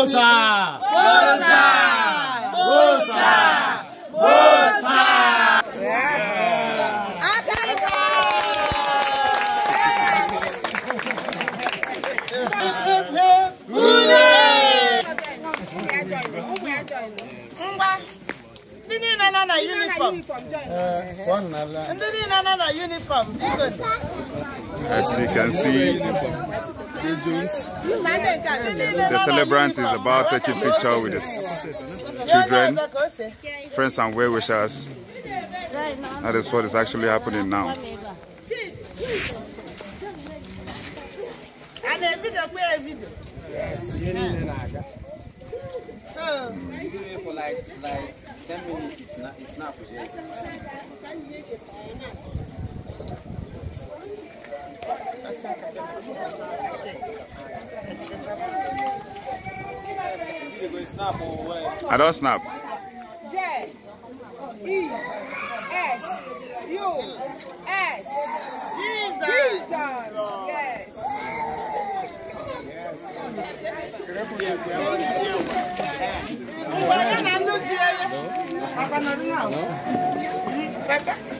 Bolsa! Bolsa! Bolsa! Bolsa! ndị niile nọ na uniform ndị niile nọ na uniform as you can see The celebrant is about taking picture with the children, friends and well wishers. That is what is actually happening now. Yes. So, for like, like 10 minutes, it's not, I don't snap. J E S U S Jesus. Jesus. Yes. yes. No? No?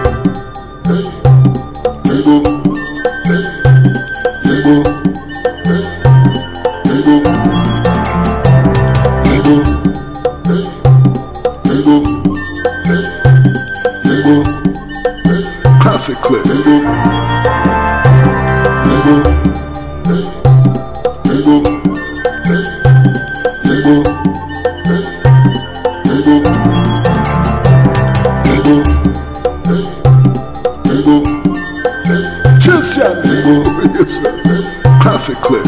chocolate. Tingle. Tingle. Classic clip.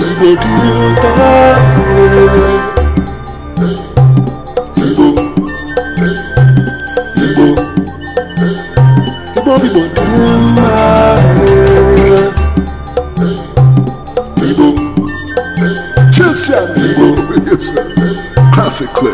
Classic clip.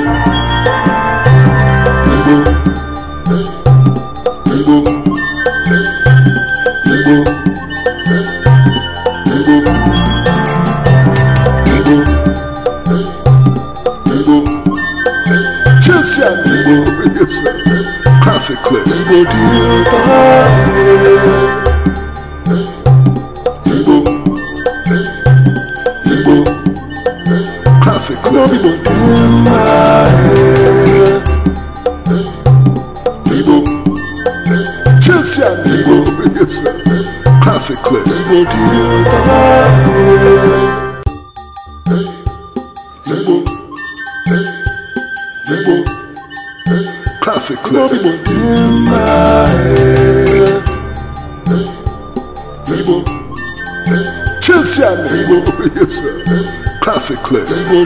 sickness. Igbo dị ụtọ Chelsea and Classic classically.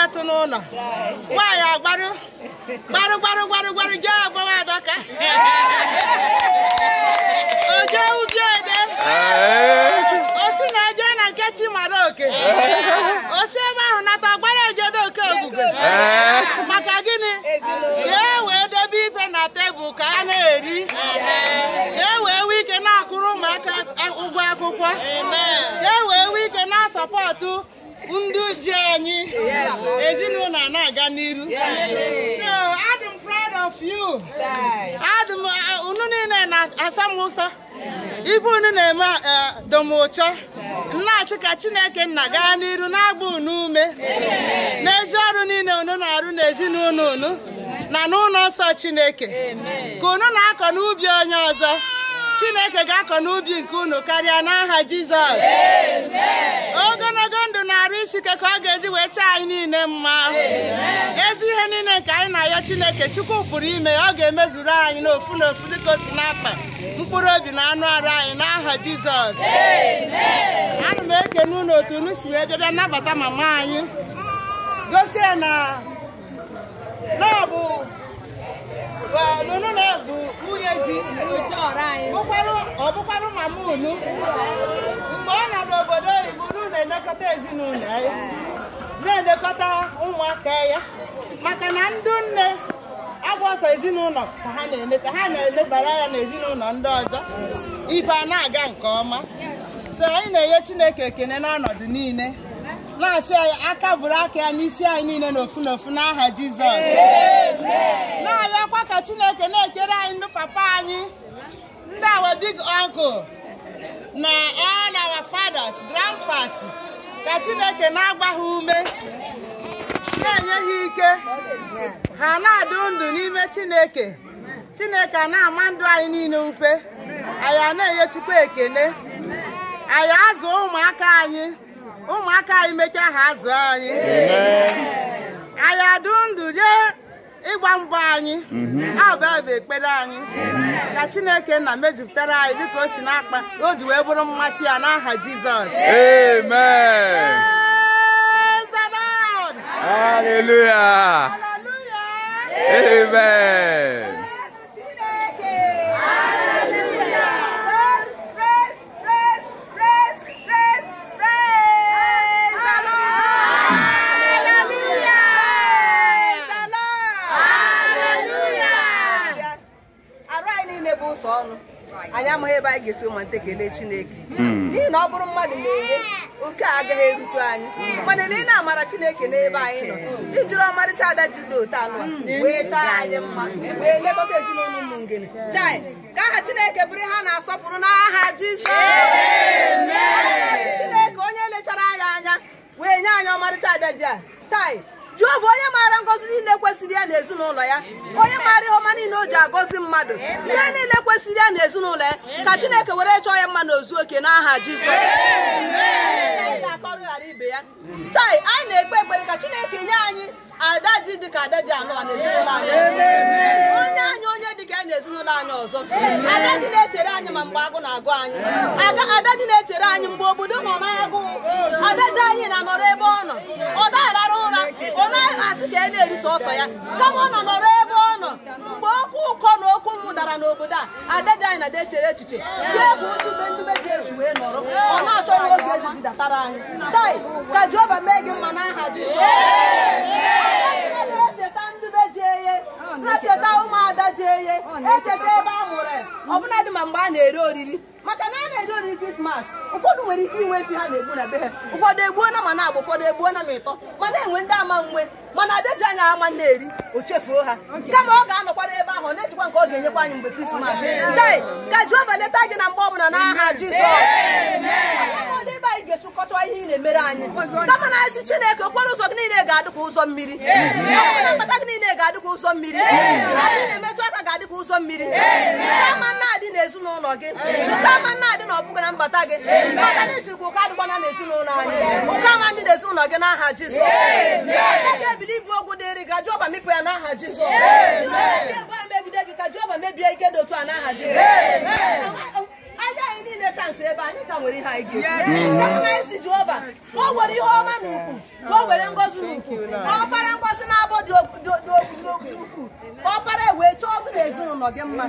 ga atụ n'ụlọ nwaanyị agbarụ gbarụ gbarụ gbarụ gbarụ jee agbawa adaka oje ubi ede osi na eje na nke chi mara oke osi ebe ahụ nata gbara ejedo oke ogbugo maka gị tebụl ka a na-eri ka e wee nwee ike na-akwụrụ ụmụaka ụgwọ akwụkwọ ka e wee nwee ike na-asọpọtụ ndị ji anyị ezinụlọ na-aga n'iru so uh, unu niile na-asa m ụsọ ife unu na-eme nna uh, nnachi ka chineke nna gaa n'iru na-agba unu ume n'ezi ọrụ niile unu na-arụ n'ezinụlọ unu na n'ụlọ nsọ chineke ka unu na-akọ n'ubi onye ọzọ chineke ga-akọ n'ubi nke unu karịa n'aha jizọs ogologo ndụ na-arụ isike ka ọ ga-eji wee chee anyị niile mma ezi ihe niile nke anyị na-ayọ chineke chukwu pụrụ ime ọ ga-emezuru anyị n'ofu n'ofu dịka osi n'akpa mkpụrụ obi na anụ arụ anyị n'aha jizọs ana m eke unu otu unu si wee bịa nabata ma mama anyị gosi ya na na nụnụ na ebu nwunye ji ọ ma mama unu mgbe ọ nọ n'obodo oyibo na-elekọta ezinụlọ ya na-elekọta ụmụaka ya maka na ndị nne agwọsọ ezinụlọ ka ha na-ele ka ha na-elebara ya na ezinụlọ ndị ọzọ ibe a na-aga nke ọma so anyị na-enye Chineke ekene n'ọnọdụ niile na-achị anyị aka bụrụ aka ya n'isi anyị niile n'ofu n'ofu n'aha Jizọs na-arịọkwa ka Chineke na-ekere anyị ndị papa anyị ndị awa big uncle na all our fathers grandfathers. ka Chineke na-agba ume na-enye ha ike ha na-adụ ndụ n'ime Chineke Chineke na-ama ndụ anyị niile ufe anyị na-enye Chukwu ekele anyị azụ ụmụaka anyị ụmụaka anyị mechaa ha azụ anyị anyị adụ ndụ jee ịgba mbọ anyị mhm. abụ ekpere anyị mhm. ka chineke na mejupụtara anyị dịka o si n'akpa o ji wee bụrụ mmasị ya n'aha jizọs amen amen anyị ga-esi ụmụnta ekele Chineke hmm. n'ihi na ọ bụrụ mmadụ na-enye oke agaghị erute anyị hmm. mana na ị na-amara Chineke n'ebe anyị nọ ijiri hmm. ọmarịcha ada jido talụ wee chaa anyị mma wee lekọta ezinụlọ ụmụ ngene chai ka aha Chineke bụrụ ha na-asọpụrụ n'aha Jizọs Chineke onye lechara anyị anya wee nye anyị ọmarịcha ada ji a chai Jehova onye maara ngọzi niile kwe ya na ezinụlọ ya onye maara ihe ọma niile o ji agọzi mmadụ ihe niile kwesịrị ya na ezinụlọ ya ka chineke were chọọ ya mma na ozu oke n'aha jizọs ghara ibe ya chai anyị na-ekpe ekpere ka chineke nye anyị ada dị dịka ada dị anọ n'ezinụlọ anyị onye anyị onye dịka ya n'ezinụlọ anyị ọzọ ada dị na-echere anyị ma mgbe agụ na-agụ anyị ada dị na-echere anyị mgbe obodo ma ọma agụụ ada dị anyị na-anọrọ ebe ọ nọ ọ dara na-asị ka e na-eri sọsọ ya kama ọ nọ nọrọ ebe ọ nọ mgbe okwu ụkọ na okwu m dara n'obodo a adịghị anyị na dechere echiche ji bụ ndube ndube ji eji wee nọrọ ọ na oge ezizi datara anyị tai ka Jehova mee gị mma n'aha Jizọs na-echeta ụmụada ji eye echeta ebe a mụrụ ọbụladị ma mgbe a na-eri oriri maka na a na-eri oriri krismas ụfọdụ nwere ike inwe efi ha na-egbu na be ha ụfọdụ egbuo na ma na-agba ụfọdụ egbuo na ma ịtọ mana enwe ndị ama nwe mana adeji anya ama na-eri o chefuo ha kama ọ ga-anọkwara ebe ahụ na-echekwa nke ọ ga-enyekwa anyị mgbe krismas ka Jehova leta gị na mgbe ọbụla n'aha Jizọs anyị ga-echukọta ihe ị na-emere anyị kama na ezi Chineke okporo ụzọ gị niile ga-adị ka ụzọ mmiri ọkpụkpụ mkpata gị niile ga-adị ka ụzọ mmiri ị na-emetụ aka ga-adị ka ụzọ mmiri kama na-adị n'ezinụlọ gị kama na-adị na ọbụghị na mgbata gị maka na izirikwa ụka na n'ezinụlọ anyị ụka nwa na-ezinụlọ gị n'aha aha e ga-ebili ibu ogwu dịrị gị Jehova mịpụ ya n'aha Jizọs megide gị ka Jehova mebie ike dị otu a n'aha Jizọs nwere ihe anyị ga-ekwu Jehova ka o were ihe ọma na ukwu ka o were ngozi na ukwu ka ọkpara ngozi na-abọ dị ukwuu ka ọkpara wee chọọ ọgụ na ezinụlọ gị mma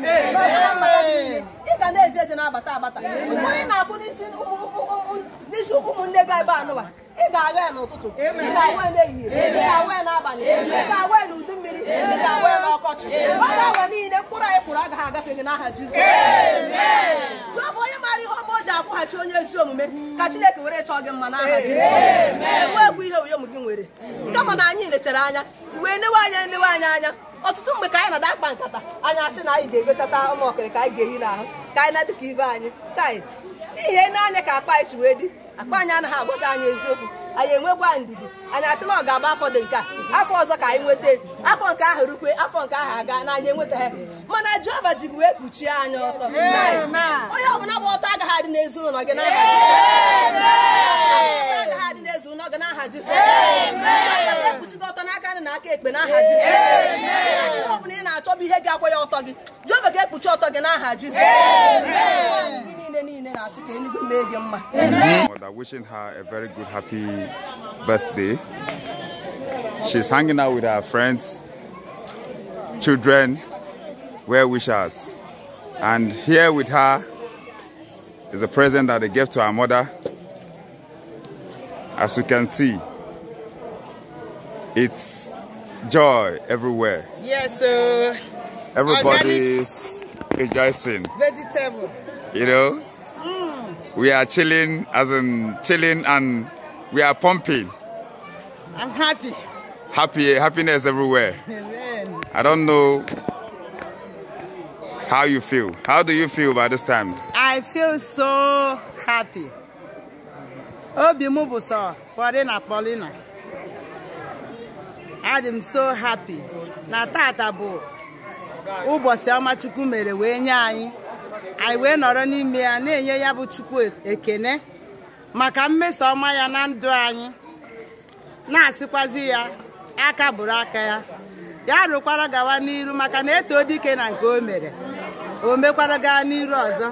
ị ga na-eje eje na-abata abata mgbe ị na abụ n'isi ụmụnne gị ebe anụwa ị ga-agha ya n'ụtụtụ ị ga-awa ya n'ehihie ị ga-awa ya n'abalị ị ga-awa ya n'udu mmiri ị ga-awa ya n'ọkọchị ọ ga-awa niile mkpụrụ anyị kpụrụ agaghị agafe gị n'aha Jizọs ihe ọma ọ ji akwụghachi onye ezi omume ka chineke were chọọ gị mma n'aha gị ewebụ ihe m gị nwere kama na anyị lechara anya wee newe anya enewe anyị anya ọtụtụ mgbe ka anyị na-ada akpa nkata anyị asị na anyị ga-egotata ụmụ ọkịrị ka anyị ga-eyi n'ahụ ka anyị na-adịka ibe anyị chai ihe n'anya ka akpa anyị si wee dị akpa anyị anaghị agwata anyị eziokwu anyị enwegwa ndidi anyị asị na ọ ga-agba afọ dị nke a afọ ọzọ ka anyị nweta afọ nke ahụ rukwe afọ nke ahụ aga na nweta ha mana Jehova ji wee kpuchie anyị ọtọ onye ọbụla bụ ọtọ agaghị adị n'ezinụlọ gị n'aha agaghị adị gị ọtọ n'aka nị na aka ekpe n'aha Jizọs ọbụla ị na-achọ ihe gị akwa ọtọ gị Jehova ga-ekpuchi ọtọ gị n'aha Jizọs Mother wishing her a very good happy birthday. She's hanging out with her friends, children, well wishers. And here with her is a present that they gave to her mother. As you can see, it's joy everywhere. Yes, sir. Everybody's rejoicing. Vegetable. You know? We are chilling, as in chilling, and we are pumping. I'm happy. happy happiness everywhere. Amen. I don't know how you feel. How do you feel by this time? I feel so happy. Obi m bụ sọ kpọrị na kpọrị na. i am so happy na tata bụ ụbọchị ọma Chukwu mere wee nye anyị anyị wee nọrọ n'ime ya na-enye ya bụ Chukwu ekene maka mmeso ọma ya na ndụ anyị na-asịkwazi ya aka bụrụ aka ya ya rụkwara gawa n'iru maka na eto dike na nke o mere o mekwara gaa n'iru ọzọ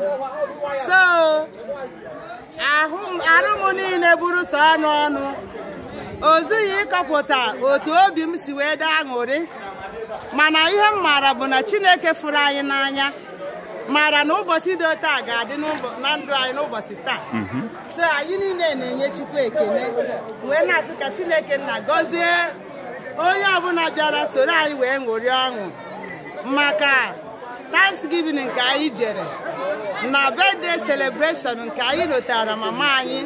so arụ m niile bụrụ so ọnụ ọnụ zughi ịkọpụta otu obi m si wee daa aṅụrị mana ihe m maara bụ na chineke fụrụ anyị n'anya mara na ụbọchị dị otu a ga-adị na ndụ anyị n'ụbọchị taa mhm. so anyị niile na-enye chukwu Ekene wee na asị ka chineke nna gọzie onye ọbụla bịara soro anyị wee ṅụrị ọṅụ maka thanksgiving nke anyị jere na birthday celebration nke anyị lotara mama anyị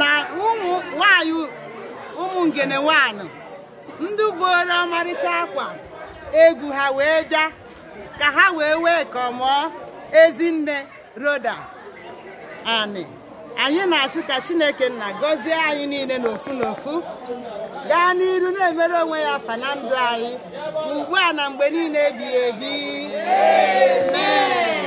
na ụmụ nwanyị ụmụ ngene nwanyị ndị buola ọmarịcha akwa egwu ha wee bịa ka ha wee wee kọmụọ ezinne roda anyị na-asị ka chineke nna gọzie anyị niile n'ofu n'ofu gaa n'iru na-emere onwe ya afa na ndụ anyị ugbu a na mgbe niile ebighị ebi